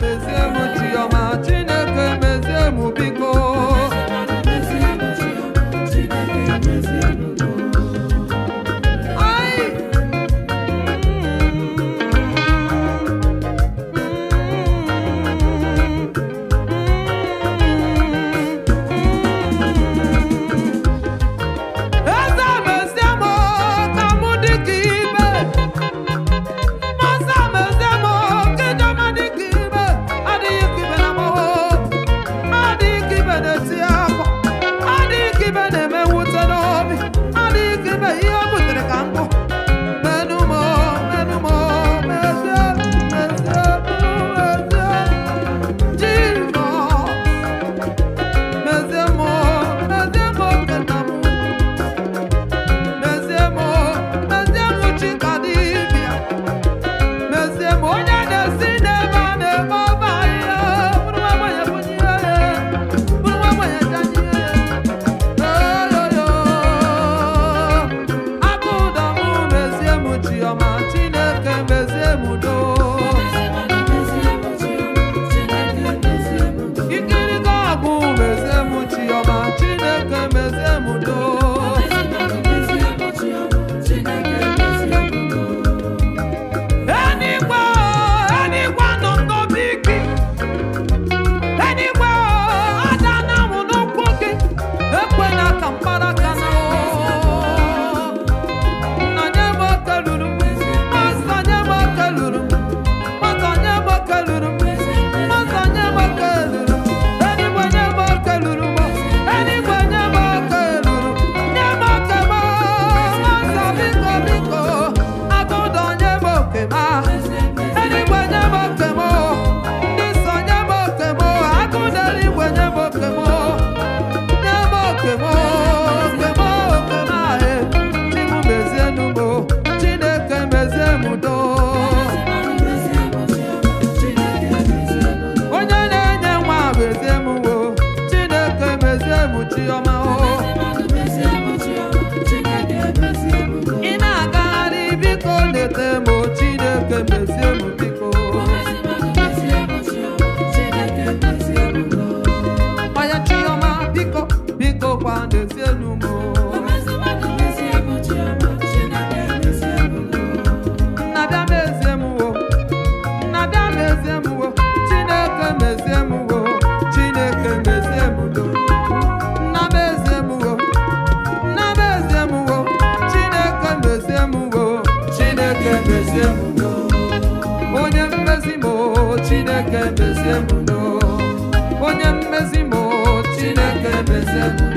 bezie Deus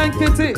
aka nkịtị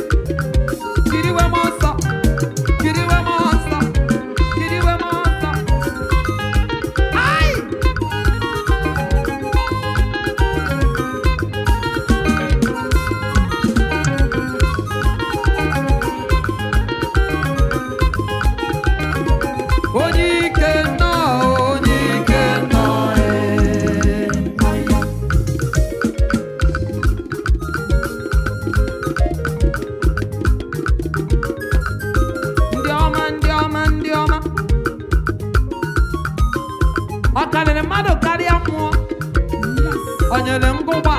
mmadụ karịa mmụọ o nyere ngụgba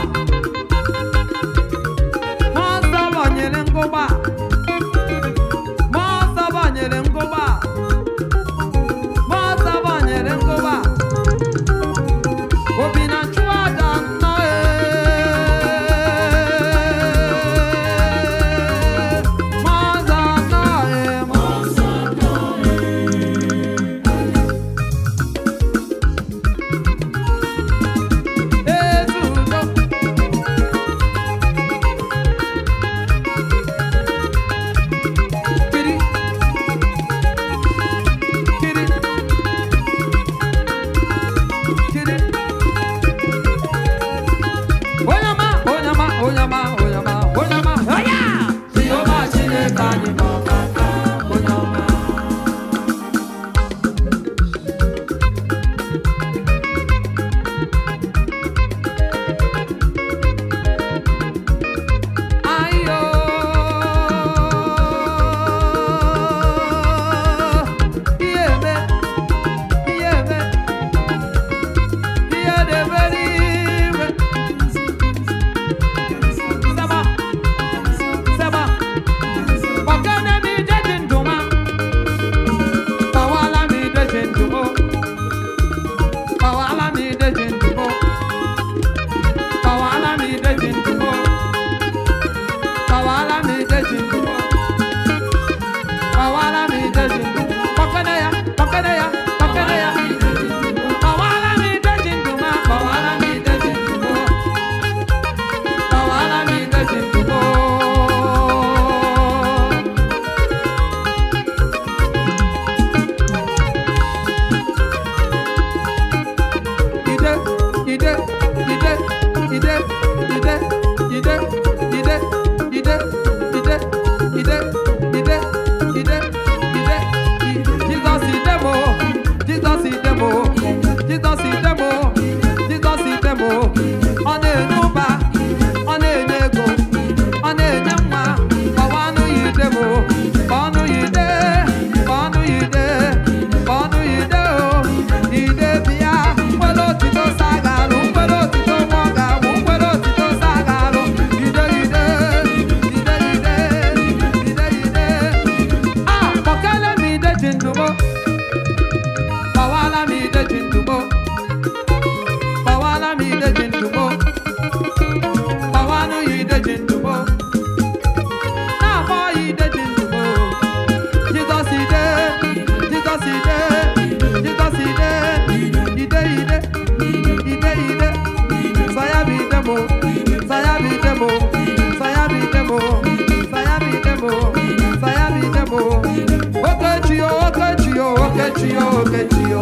Chio, que Chio.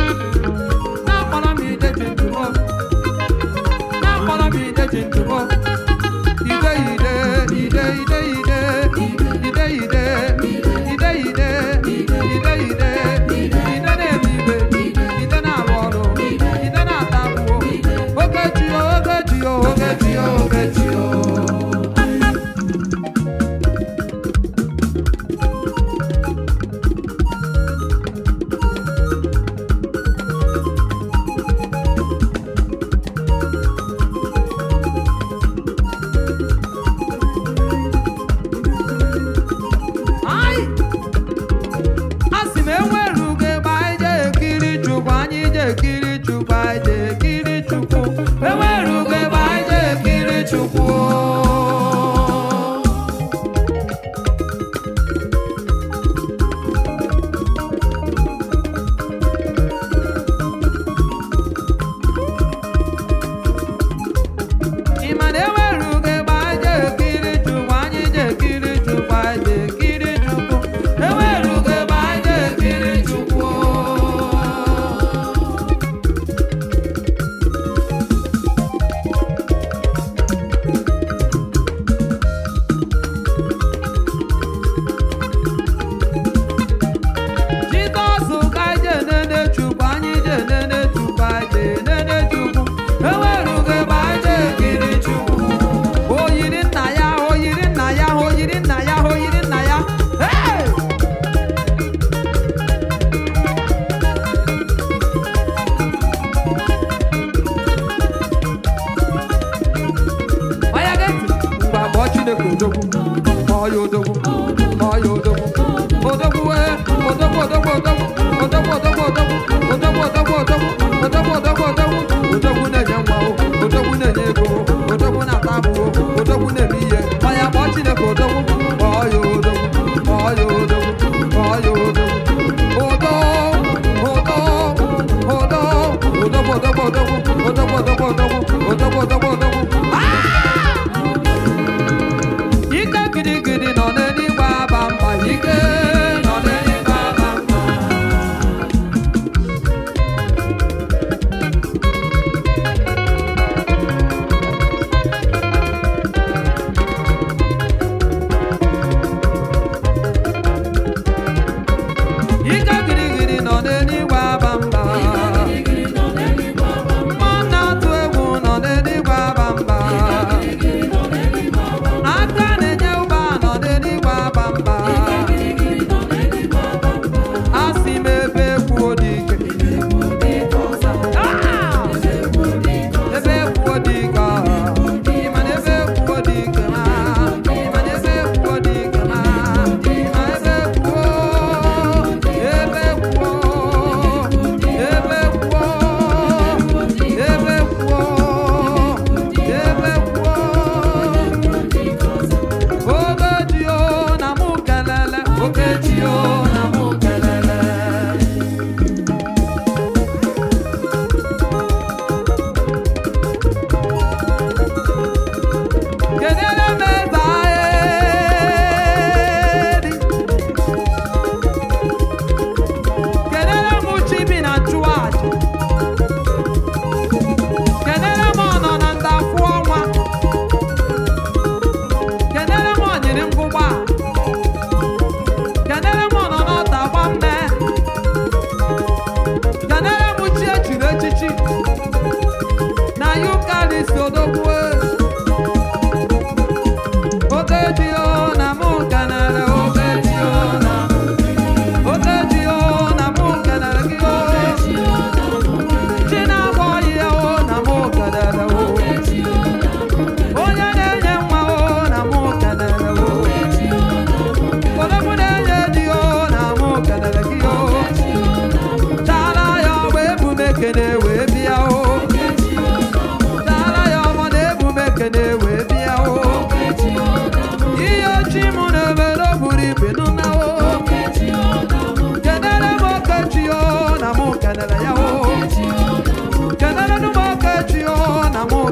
all you do.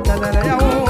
botanana ya